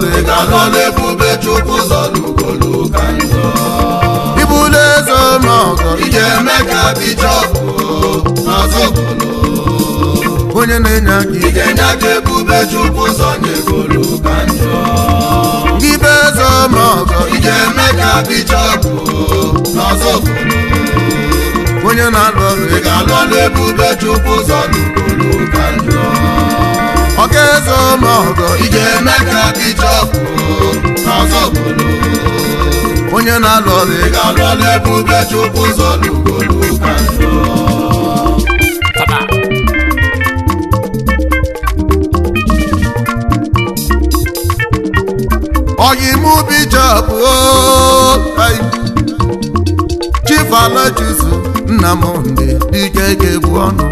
ị ga-anọ chukwu zọlụ ka ije eme ka bishọpụ n'azọgolo onye na-enye aka ebube chukwu ibe eze ije eme ka onye na-alụ ọrụ ị ga-alụ ọrụ ebube chukwu zọnye njọ ọkaeze ọmọgọ ị ga-eme ka bishọp ọzọ bụrụ, onye na-alụ ọrụ ị ga-alụ ọrụ ebe Ubechukwu ụzọ n'ugolu ka ọyimụ bishọp Chief Alochukwu Nnamdị Dike ga-ebu ọnụ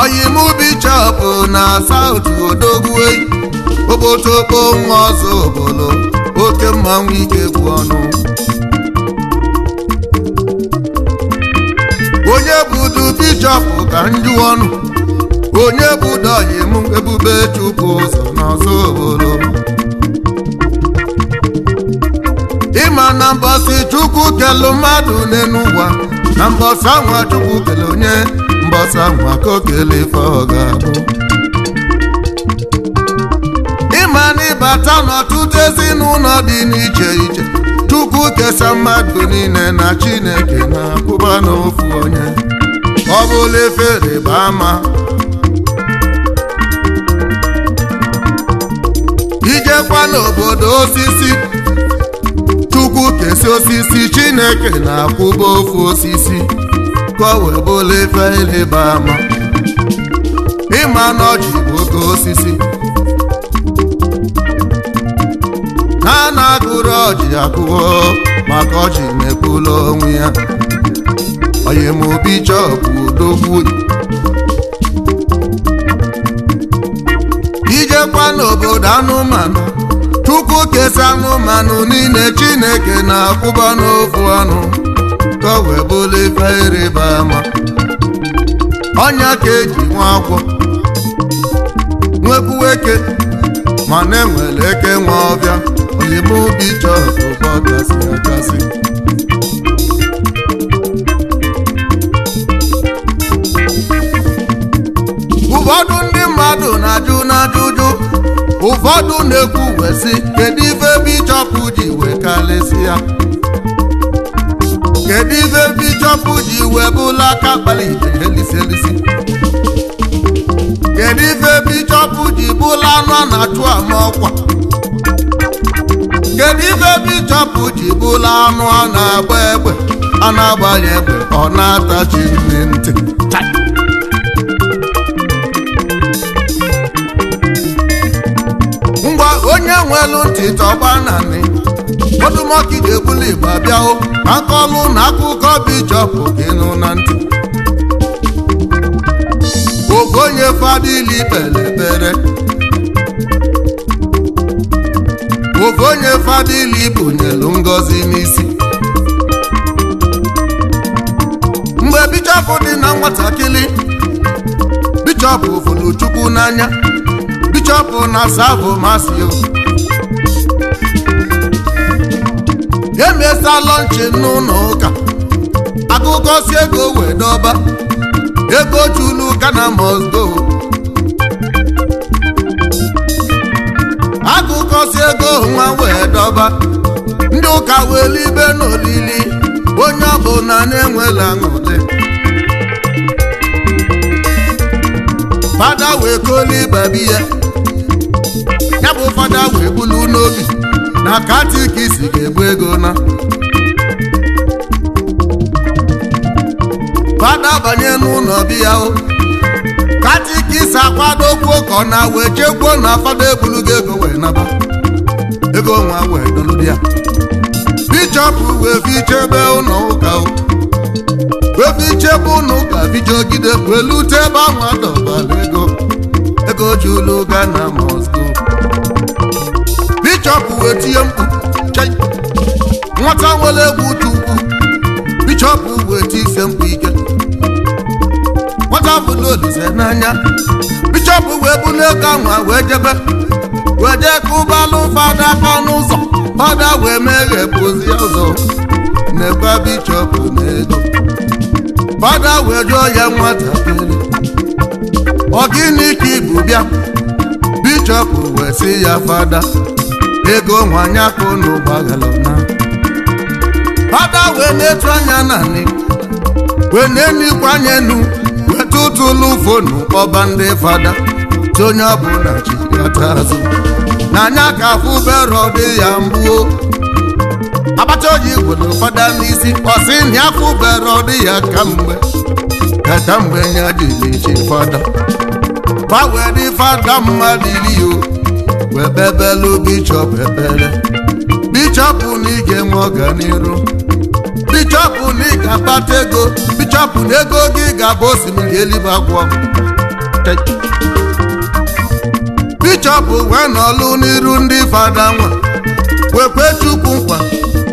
oyimu bichọpụ na saut odogwu okpotokpo nwa ọzọ obodo oke mmanwụ ike kwu ọnụ onye budu bichọpụ ka njụ ọnụ onye budo oyimu ebube chukwu ụzọ n'ọzọ obodo ịma na mbọsị chukwu kelu mmadụ n'enu ụwa na mbọsị anwa chukwu kelụ onye mbọsa nwa kokele ife ọ ga-abụ ịma na ịbata n'ọtụtụ ezinụlọ dị n'iche iche tupu kesa mmadụ niile na Chineke na-akwụba n'ofu onye ọ bụla efere bụ ama ijekwa n'obodo osisi tupu kesa osisi Chineke na-akwụba ofu osisi ka wee bụla ife ịrịba ama ịma na bụ oke osisi ha na-agụrụ ọjị akụwo maka ọjị mepụla onwe ya oyimobi chọpụ udogbu ijekwa n'obodo anụmanụ chukwu kesa anụmanụ niile chineke na-akwụba n'ofu ọnụ ka ọ wee bụlụ ife ịrịba ama ọnya ka eji nwa agwọ nwekwuo eke mana enwere eke nwa ọbịa oyimụ obi chọrọ ụba gasị ụfọdụ ndị mmadụ na-ajụ n'ajụjụ ụfọdụ na-ekwu wesi kedu ife bichọpụ ji wee kalesị ya kedu ibe bichọpụ ji wee bụla aka kpalite elisi elisi kedu ibe bichọpụ ji bụla anọ na-achụ ama ọkwa kedu ibe bichọpụ ji bụla anụ a na-agba egbe a na-agbanye egbe ọ na-atachi nri ntị ngwa onye nwelu ntị tọgba na nị odumọkụ ga-ebuli igbo abịawo aka na akụkọ bichọpụ gị nụ na ntị ogonye fadili kpere ekpere ogonye fadili bụnyelu ngozi n'isi mgbe bichọpụ dị na nwatakịrị bichọpụ fụrụ chukwu n'anya bichọpụ na Savo masi Emesa mesaa lọnchi n'ụlọ ụka akụkọ si ego wee dọba ego chulu Ghana must go akụkọ si ego nwa wee dọba ndị ụka wee libe n'olili onye ọbụla na-enwela aṅụrị fada wee koli babi ya bụ fada wee bulu n'obi na katikisi ga-egbu ego na bada banye n'ụlọ biya o akwado akwadokwu ka ọ na wee chekwuo na fada ebulugo ego wee naba ego nwa wee doludi ya bichọpụ wee fichebe ụlọ ụka o wee chebe ụlọ ụka bijogide wee tebe ebe ahụ adọbala ego ego ji ụlọ ụka na Moscow bichọpụ wee tie mkpu nwata nwere egwu tu ukwu wee tie ise mkpu ike nwata bụ n'olise n'anya bichọpụ wee bụ n'ego ahụ wee jebe wee jee kụbalụ fada ọnụ ụzọ fada wee meghe pụzi ụzọ na-ekwe bichọpụ n'ego fada wee jụọ ya nwatakịrị ọ gịnị ka ibu bịa bichọpụ wee sị ya fada ego nwanyị akụ na ụgbọghalana ada wee na-etu anya naanị. wee na-emikwa anya enu wee fonu kpọba ndị fada tu onye ọbụla ji ata azụ n'anya ka afụ bero dị ya mgbuo abacha oji gwere fada n'isi ọsị na afụ bero dị ya kamgbe kata mgbe ya jiri ji fada fa wee dị fada mma iri o wee bebelu bichọp ebele bichọpụ na ị ga ọganiru bichọpụ na ego bichọpụ na ego gị ga-abụ osimiri elibe agwọ bichọpụ wee nọlụ n'iru ndị fada nwa wekwe chukwu nkwa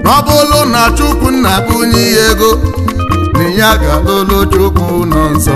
na ọ bụrụ na chukwu nna bụ onye ego na ya ga-alụlụ chukwu nọ nsọ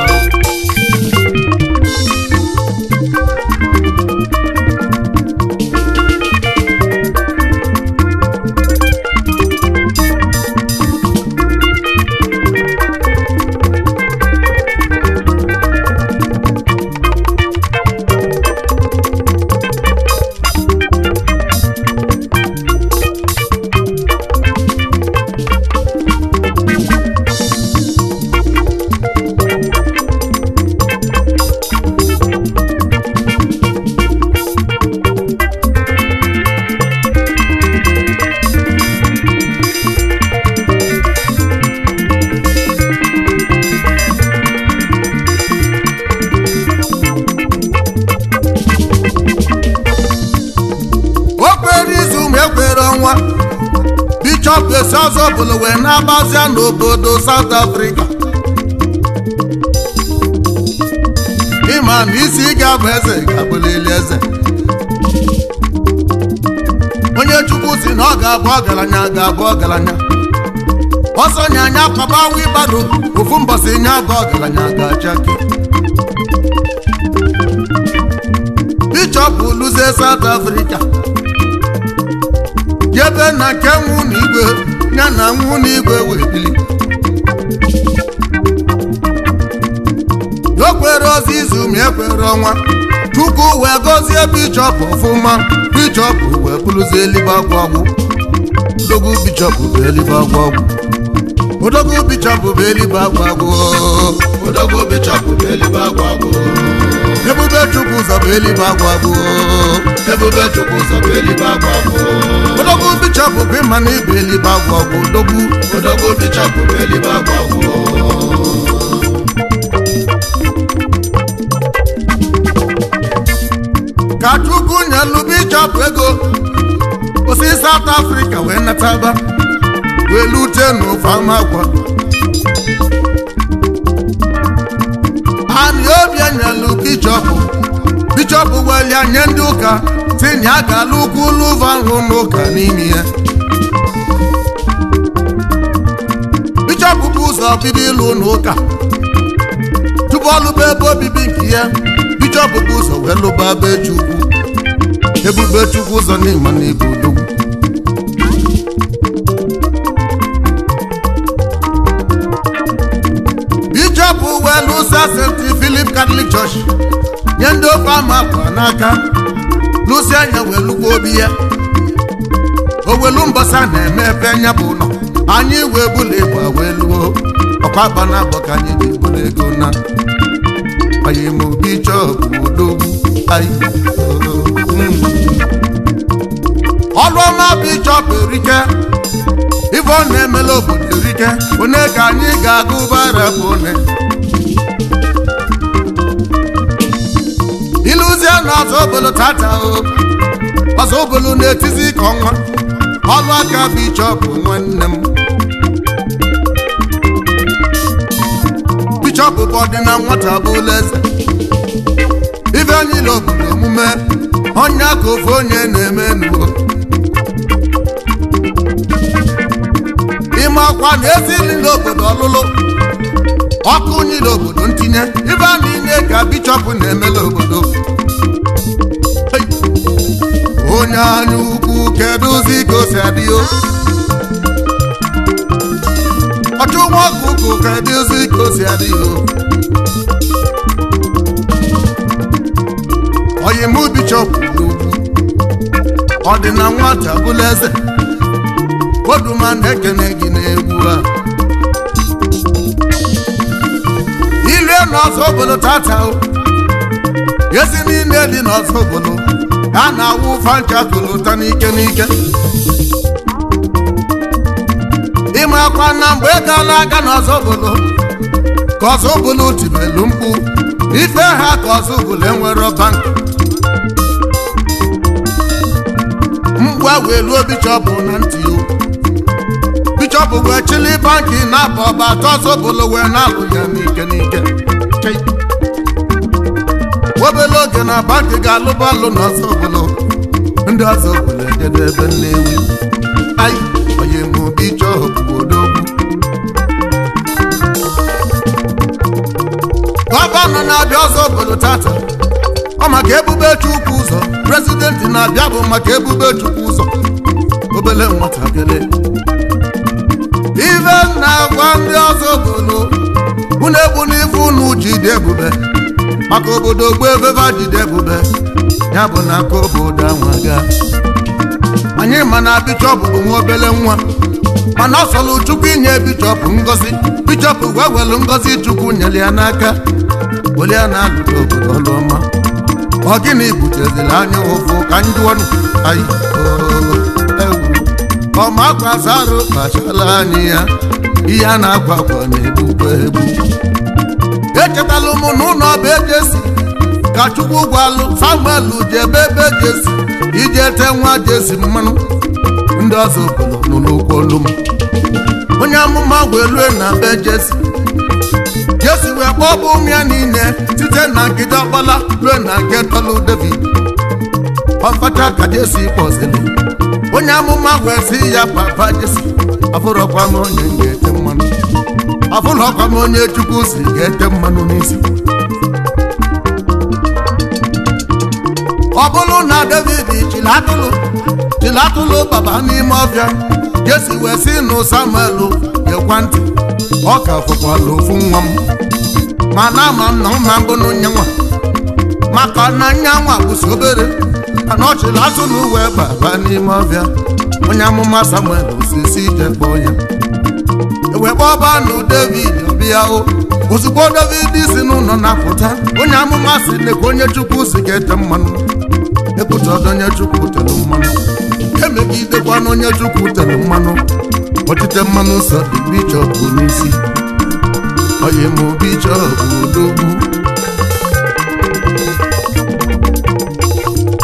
bishọp esi ọzọ bụla wee na-agbazia n'obodo South Africa ịma na isi ga-abụ eze ga-abụlili eze onye chukwu si na ọ ga-abụ ọgaranya ga-abụ ọgaranya ọsọ nya anya kwabawa ịbado ofu mbọsị nya bụ ọgaranya ga-achake bishọp luzie South Africa jebe na ke na igwe ya na nwụ igwe wee bili okwere ozi izu ma ekwere ọnwa chukwu wee gọzie bichọp ọfụma bichọp wee bụrụzi elipa agwagwụ odogwu bichọp bụ bụ odogwu ebube chukwu ụzọ bụ elibe agwa bụ ebube chukwu ụzọ bụ bụ ibe bụ bụ ka chukwu nnukwu bichọp ego osi South Africa wee nataba wee lute n'ofe ama Obianọ nyelu bichọpụ bichọpụ gbalịa nye ndị ụka tinye aka n'ukwu ụlọva nhụ n'ụka n'ime ya bichọpụ bụ ụzọ bido ịlụ n'ụka tupu ọlụba ebe obibi nke ya bichọpụ bụ ụzọ wee lụba ebe Chukwu ebube Chukwu ụzọ n'ịma na ibu hapụ uwe n'ụsa St. Philip Catholic Church nye ndị ofe ama akwa n'aka n'ụsọ anya welukwa obi ya owelu mbasa na-eme ebe anya bụ ụlọ anyị wee bụla ịgba wee luo ọkwa aba na abọ ka anyị ji bụla ego na anyị ma obi chọọbụ odogwu ọlụọma bụ ịchọpụ erike ife ọ na-emela obodo ike one ka anyị ga-agụ bara bụ one ịlụzie na ọzọ obolo tata ọzọ obolo na-etizi ka ọnwa ọlụ aka bichọp nwanne m bichọp bụ ọdịna nwata bụ ụlọ eze ife anyị obodo omume onye aka ofe onye na-eme n'ime ọkwa na nri n'obodo ọlụlụ ọkụ unyi n'obodo ntinye ibe a niile ka bishọp na-emela obodo onye anya ukwu kedụzi ka o si adị ọchụnwa ọkụkụ kedụzi ka o si adị n'ugwu ọ dị na nwata bụla eze Koduma na-ekene gị n'egwu a ilu n'ọzọ obodo tata ezi niile dị n'ọzọ obodo a na-awụ fanchakụlụta n'ike n'ike ịmakwa na mgbe egala aga n'ọzọ obodo ka ọzọ obodo tibelu mkpu ife ha ka ọzọ obodo enwere bank mgbe wee ruo bichọpụ na ntị o chọpụgo chili banki na-apụ ọba atọsobolo wee na-apụ ya n'ike n'ike obele oge na banki ga-alụba alụ na ọzọbolo ndị ọzọ obolo edebe ebe nnewi ayi onye mobi chọọ odogwu gọvanọ na-abịa ọzọ obolo tata ọ maka ebube chukwu ụzọ prezidenti na-abịa bụ maka ebube chukwu ụzọ obele nwatakịrị ife na agwa ndị ọzọ bụnụ unu egbuna ife unu jide ebube maka obodo gbuo efefe jide ebube ya bụ na aka obodo anwaga anyị ma na bichọpụ bụ nwa obele nwa mana ọ chukwu inye bichọpụ ngozi bichọpụ gwa welu ngozi chukwu nyere ya n'aka were ya na-alụta obodo ọlụọma ọ gịnị buteziri anya ụfụ ka anyị jụọ anyị ọmakwasarụ kpachala anyị ya ihe a na-akwakwa na-egbukwa egbu echetalụ m n'ụlọ ọba ejesi ka chukwu gwalụ samuel jebe ebe jesi ije te nwa jesi mmanụ ndị ọzọ bụrụ n'ụkwụ olu m onye amụma wee na be jesi jesi wee kpọọ bụ ụmụ ya niile site na nkịta ọkpala lue na nke tọlụ david ọkọcha ka Jesu kpọsịrị onye amụma kwesị ya papa jesi afụrọkwa m onye ga-ete mmanụ afụrọkwa m onye chukwu si ga-ete mmanụ n'isi ọ bụrụ na david chilatụlụ chilatụlụ baba n'ime ọbịa Jesu wee si nụ samuel gekwa ntị ọ ka fụkwala ofu nwa m mana ama nna mma mbụ n'onye nwa aka na nyanwa bụsi obere anọchila azụ n'uwe uwe baba n'ime ọbịa onye amụma samuel osisi ije e kpọọ ya wee kpọba nụ david ọbịa ozugbo david si n'ụlọ na-apụta onye amụma si nekwa onye chukwu si ga-ete mmanụ ekwutada onye chukwu tere mmanụ emegidekwa na onye chukwu tere mmanụ ọchịte mmanụ sọ dị bichọp n'isi m obi chọọ bichọp odogwu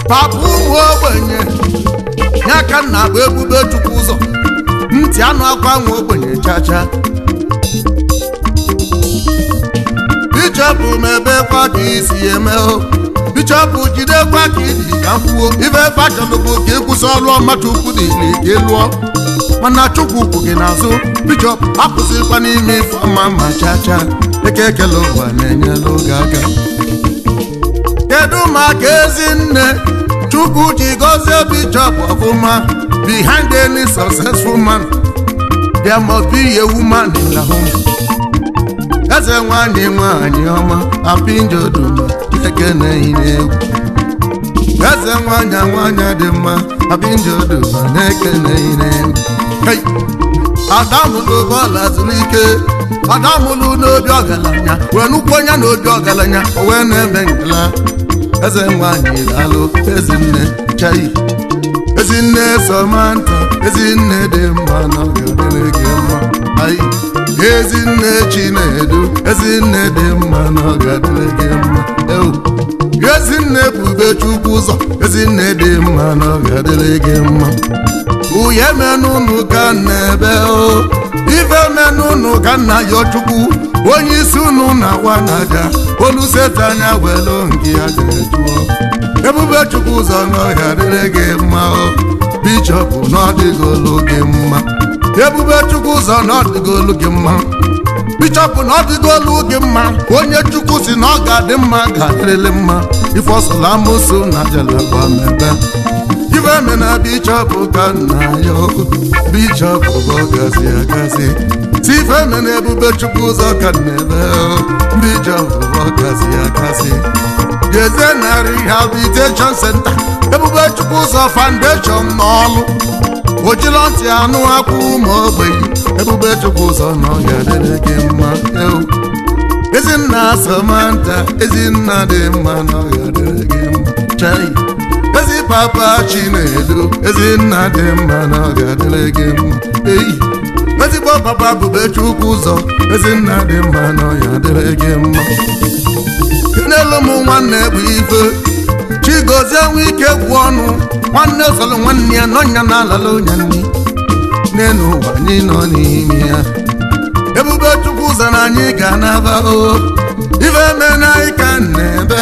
papa ụmụ ogbenye nye ka nna bụ ebube chukwu ụzọ ntị anụ akwa nwa ogbenye chacha bichọpụ mebekwa ka isi eme o bichọpụ jidekwa ka iji ka kwuo ife fachọlụbụ ka ịkwụsị ọrụ ọma chukwu dị ile ka ịlụọ mana chukwu kwụ gị n'azụ bichọpụ apụsịkwa n'ime ife ọma ma chacha eke ekele ụwa na-enyela oge aka kedu ma ka ezi nne chukwu ji gozie bishop ofuma behind any successful man there must be a woman in the home eze nwanyị nwanyị ọma apinjodoma ekeneine egwu eze nwanya nwanya dị mma apinjodoma na ekeneine egwu adamụ bụ bọọlụ azụlike ada mụlụ n'obi ọgaranya were nukwu n'obi na obi ọgaranya o wee na-eme ngala eze nwanyị lalụ ezinne chai ezinne somanta ezinne dị mma n'oge mma ai ezinne chinedu ezinne dị mma n'oge na mma ewu ezinne bube chukwu ụzọ ezinne dị mma n'oge gị mma uye menunu ka na-ebe ife menunu ka nna ya chukwu onye isi unu na wanaja olu setanya welu nke ya jụọ ebube chukwu ụzọ n'ọhịa dịrị gị mma bishọp n'ọdịgolu gị mma ebube chukwu ụzọ n'ọdịgolu gị mma bishọp na ọdịgolu gị mma onye chukwu si na ọ adị mma ga-adịrịlị mma ife ọsụla amụsụ na jeleba mebe gọvanọ bichọp ka nna ya bichọp bụ ọgazi agazi tifeme na ebube chukwu ụzọ ka nnaebe bichọp bụ ọgazi agazi Jeze narị rehabilitation center ebube chukwu ụzọ foundation n'ọlụ ojila ntị anụ akwụ ma ogbenye ebube chukwu ụzọ na ọ ga-adịrị gị mma ezinna Samantha ezinna dị mma na ọ ga-adịrị gị mma chai ezi papa chinedu ezi nna dị mma na ọ ga-adịrị gị mma eyi ezigbo papa bube chukwu ụzọ ezi nna dị mma na ọ ga-adịrị gị mma n'elu m nwanne bụ ife chigozie nwe ike gwụ ọnụ nwanne ụsọlụ nwanne ya nọnya na alala onye nri n'elu ụwa anyị nọ n'ime ya ebube chukwu ụzọ na anyị ga na-aba oh. ife mena ịka na-ebe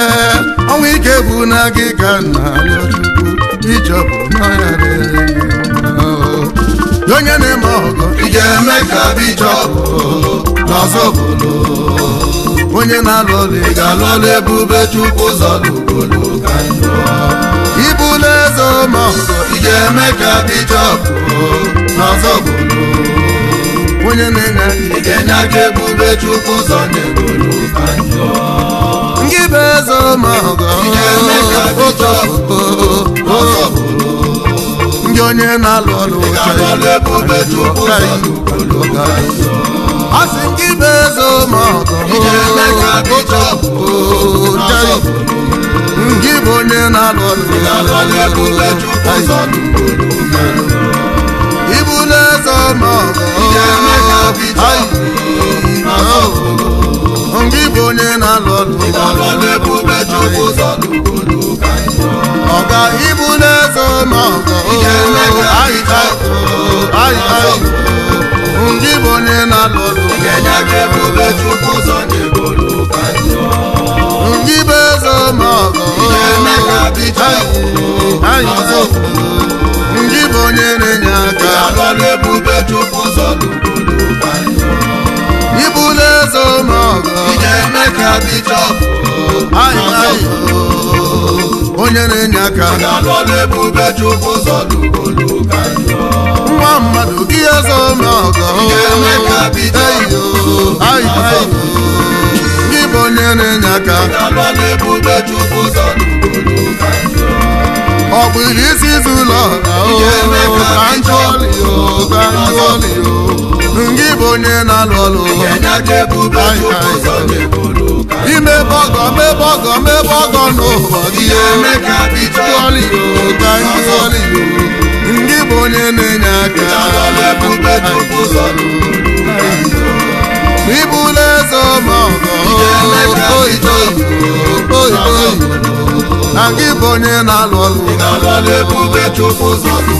ọnwa ike bụ na gị ka na alọchukwu ichọpụ n'ọya oh, onye na-eme ọgọ ị ga-eme ka bichọpụ n'ọzọ obodo onye na-alụ ọlụ ị ga-alụ ebube chukwu zọlụgolo ka njọ ịbụla eze ọma ọgọ ị ga-eme ka bichọpụ n'ọzọ obodo onye mena chukwu ụzọ na-ebolu ka njọ ndị be eze ma ndị onye na-alụ ọrụ asị ndị be eze ma ndị bụ onye na-alụ fẹ́ tọ́ mọ̀ ọ́ ngíbo ní na lọ́lù. ìbálòlẹ́bù bẹ́jú kó sọ́dún kúlù káyọ̀. ọ̀gá ibú náà sọ mọ̀ ọ́ àyíká àyíká ngíbo ní na lọ́lù. ìkẹjẹ kẹ́bù bẹ́jú kó sọ́dún onye na-enye aka nwa mmadụ gị ọzọ gị bụ onye na-enye aka ọ bụ iri isi izu ụlọ gị bụ onye na-alụ ọlụ ọgọ mẹbọ ọgọ n'ụbọchị emeka bitoli ogba ntoli ndị bụ onye na-enye aka ibula eze ma ọgọ oyibo na gị bụ onye na-alụ ọlụ